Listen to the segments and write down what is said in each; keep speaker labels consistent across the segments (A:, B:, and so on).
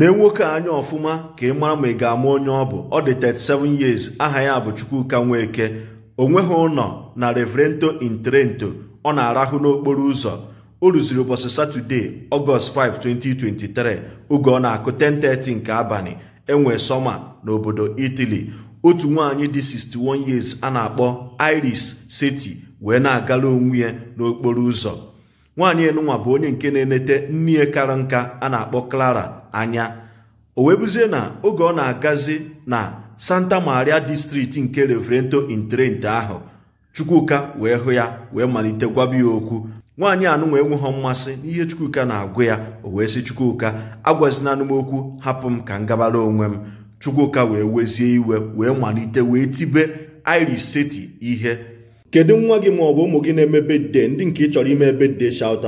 A: lee nwoke anya ọfụma ka ị mara ma ị ga-ama onye ọ bụ ọ dị 37 years aha ya bụ Chukwuka Nweke onweghị ụlọ na Reverento in Trento ọ na-arahụ n'okporo ụzọ o rụziri ụbọchị satọdee Ọgọst 5 2023 oge ọ na-akụ 10:30 nke abalị enwe sọma n'obodo Italy otu nwaanyị dị 61 years a na-akpọ Iris Seti wee na-agala onwe ya n'okporo ụzọ nwaanyị enunwa bụ onye nke na-enete nnie kara nka a na-akpọ Clara anya o wee buzie na oge ọ na-agazi na Santa Maria distrikti nke Reverento Intrente ahụ Chukwuka wee hụ ya wee malite gwaba ya okwu nwaanyị anụnwa enweghọ mmasị n'ihe Chukwuka na-agụ ya o wee sị Chukwuka agwazina m hapụ m ka m gabara onwe m Chukwuka wee wezie iwe wee malite wee tibe Iris Seti ihe kedu nwa gị ma ọ bụ ụmụ gị na-eme bedde ndị nke ị chọrọ ime bedde shout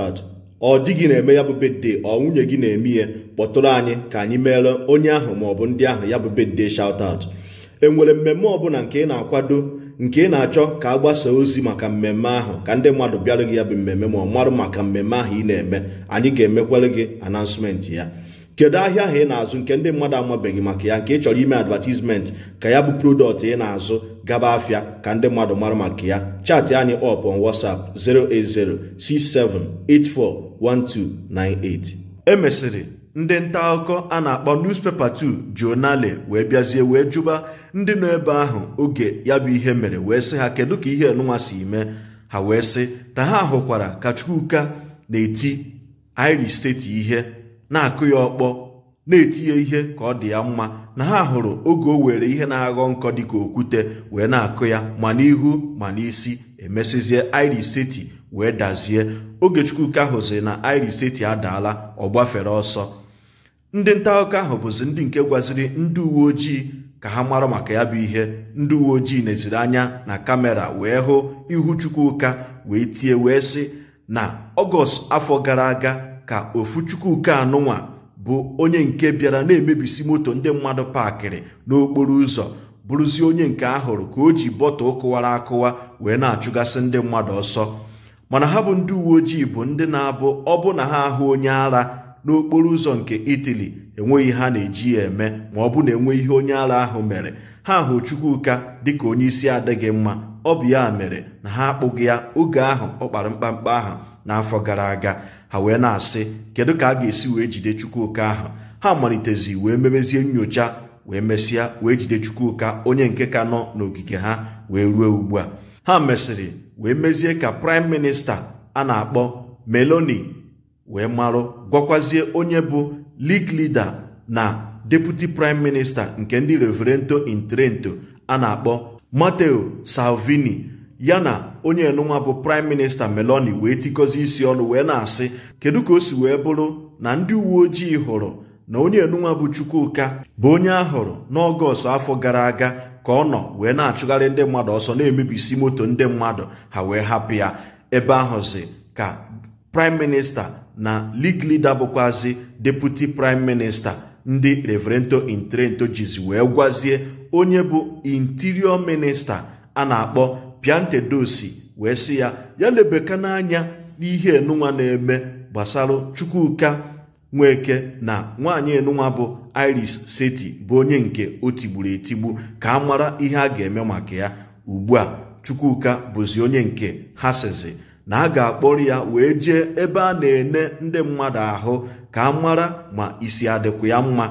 A: ọ dị gị na-eme ya bụ bedde ọ nwunye gị na-eme ya kpọtụrụ anyị ka anyị meere onye ahụ ma ọ bụ ndị ahụ ya bụ bedde shout out e nwere mmemme ọbụla nke ị na-akwado nke ị na-achọ ka a gbasaa ozi maka mmemme ahụ ka ndị mmadụ bịara gị ya bụ mmemme ma ọ marụ maka mmemme ahụ ị na-eme anyị ga-emekwere gị anansmenti ya kedu ahịa ahụ ị na-azụ nke ndị mmadụ amabeghị maka ya nke ị chọrọ ime advertisement ka ya bụ prodọkt ị na-azụ gaba afịa ka ndị mmadụ mara maka ya chatị anyị up on WhatsApp e emesịrị ndị nta akụkọ a na-akpọ newspaper 2 jonale wee bịazie wee jụba ndị nọ ebe ahụ oge ya bụ ihe mere wee sị ha kedu ka ihe nụnwa si mee ha wee sị na ha hụkwara ka Chukwuka na-eti Irish steeti ihe na-akụ ya ọkpọ na etinye ihe ka ọ dị ya mma na ha hụrụ oge o were ihe na-aghọ nkọ dịka okwute wee na-akụ ya ma n'ihu ma n'isi emesizie Irish seti wee dazie oge Chukwuka hụzi na Irish seti adaala ọ gbafere ọsọ ndị nta akụkọ ahụ bụzi ndị nke gwaziri ndị uwe ojii ka ha mara maka ya bụ ihe ndị uwe ojii neziri anya na kamera wee hụ ihu Chukwuka wee tie wee sị na ọgọst afọ gara aga ka ofu chukwuka anụnwa bụ onye nke bịara na-emebisi moto ndị mmadụ paakịrị n'okporo ụzọ bụrụzie onye nke ahụrụ ka o ji bọtụ kụwara akụwa wee na-achụgasị ndị mmadụ ọsọ mana ha bụ ndị uwe ojii bụ ndị na-abụ ọbụ na ha ahụ onye ara n'okporo ụzọ nke itali enweghị ha na-eji ya eme ma ọ bụ na enwe ihe onye ara ahụ mere ha hụ chukwuka dịka onye isi adịghị mma ọ bụ ya mere na ha akpụghị ya oge ahụ ọ kpara mkpamkpa ahụ n'afọ gara aga ha wee na-asị kedu ka a ga-esi wee jide chukwuka ahụ ha malitezi wee mebezie nyocha wee mesịa wee jide chukwuka onye nke ka nọ n'ogige ha wee ruo ugbu a ha mesịrị wee mezie ka praịm minista a na-akpọ meloni wee marụ gwakwazie onye bụ lig lida na deputi praịm minista nke ndị reverento intrento a na-akpọ mateo salvini ya na onye enunwa bụ prime minista meloni wee tikọzi isi ọnụ wee na-asị kedu ka o si wee bụrụ na ndị uwe ojii hụrụ na onye enunwa bụ chukwuka bụ onye ahụrụ n'ọgọst afọ gara aga ka ọ nọ wee na-achụgharị ndị mmadụ ọsọ na-emebisi moto ndị mmadụ ha wee hapụ ya ebe ahụzi ka prime minista na league leader bụkwazi deputi prime minista ndị reverento intrento jizi wee gwazie onye bụ interior minista a na-akpọ piantedosi wee sị ya ya lebeka n'anya n'ihe enunwa na-eme gbasara chukwuka nweke na nwaanyị enunwa bụ iris seti bụ onye nke o tigburu etigbu ka a mara ihe a ga-eme maka ya ugbu a chukwuka bụzi onye nke ha sizi na a ga-akpọrọ ya wee jee ebe a na-ene ndị mmadụ ahụ ka a mara ma isi adịkwu ya mma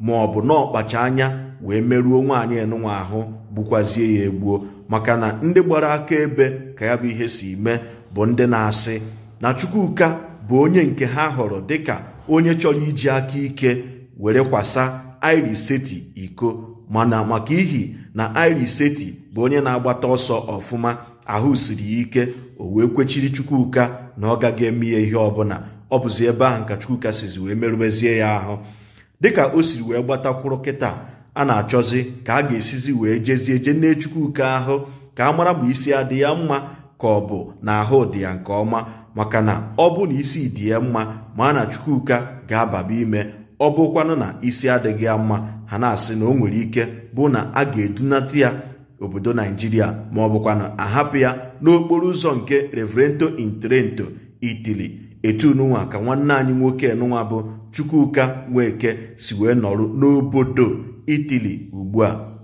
A: ma ọ bụ na ọkpacha anya wee merụọ nwaanyị enụnwa ahụ gbukwazie ya egbuo maka na ndị gbara aka ebe ka ya bụ ihe si mee bụ ndị na-asị na Chukwuka bụ onye nke ha họrọ dịka onye chọrọ iji aka ike were kwasa Iris Seti iko mana maka ihi na Iris Seti bụ onye na-agbata ọsọ ọfụma ahụ siri ike o wee kwechiri Chukwuka na ọ gaghị eme ya ihe ọbụla ọ bụzi ebe ahụ ka Chukwuka sizi wee merụmezie ya ahụ dịka o siri wee gbatakwuru kịta a na-achọzi ka a ga-esizi wee jezie je nne chukwuka ahụ ka a mara ma isi adị ya mma ka ọ bụ na ahụ dị ya nke ọma maka na ọ bụ na isi dị ya mma ma a na chukwuka ga-ababa ime ọ bụkwanụ na isi adịghị ya mma ha na-asị na o nwere ike bụ na a ga-edunata ya obodo naijiria ma ọ bụkwanụ ahapụ ya n'okporo ụzọ nke reverento intrento itili etununwa ka nwanne anyị nwoke n'ụwa bụ chukwuka nweke si wee nọrọ n'obodo itili ugbu a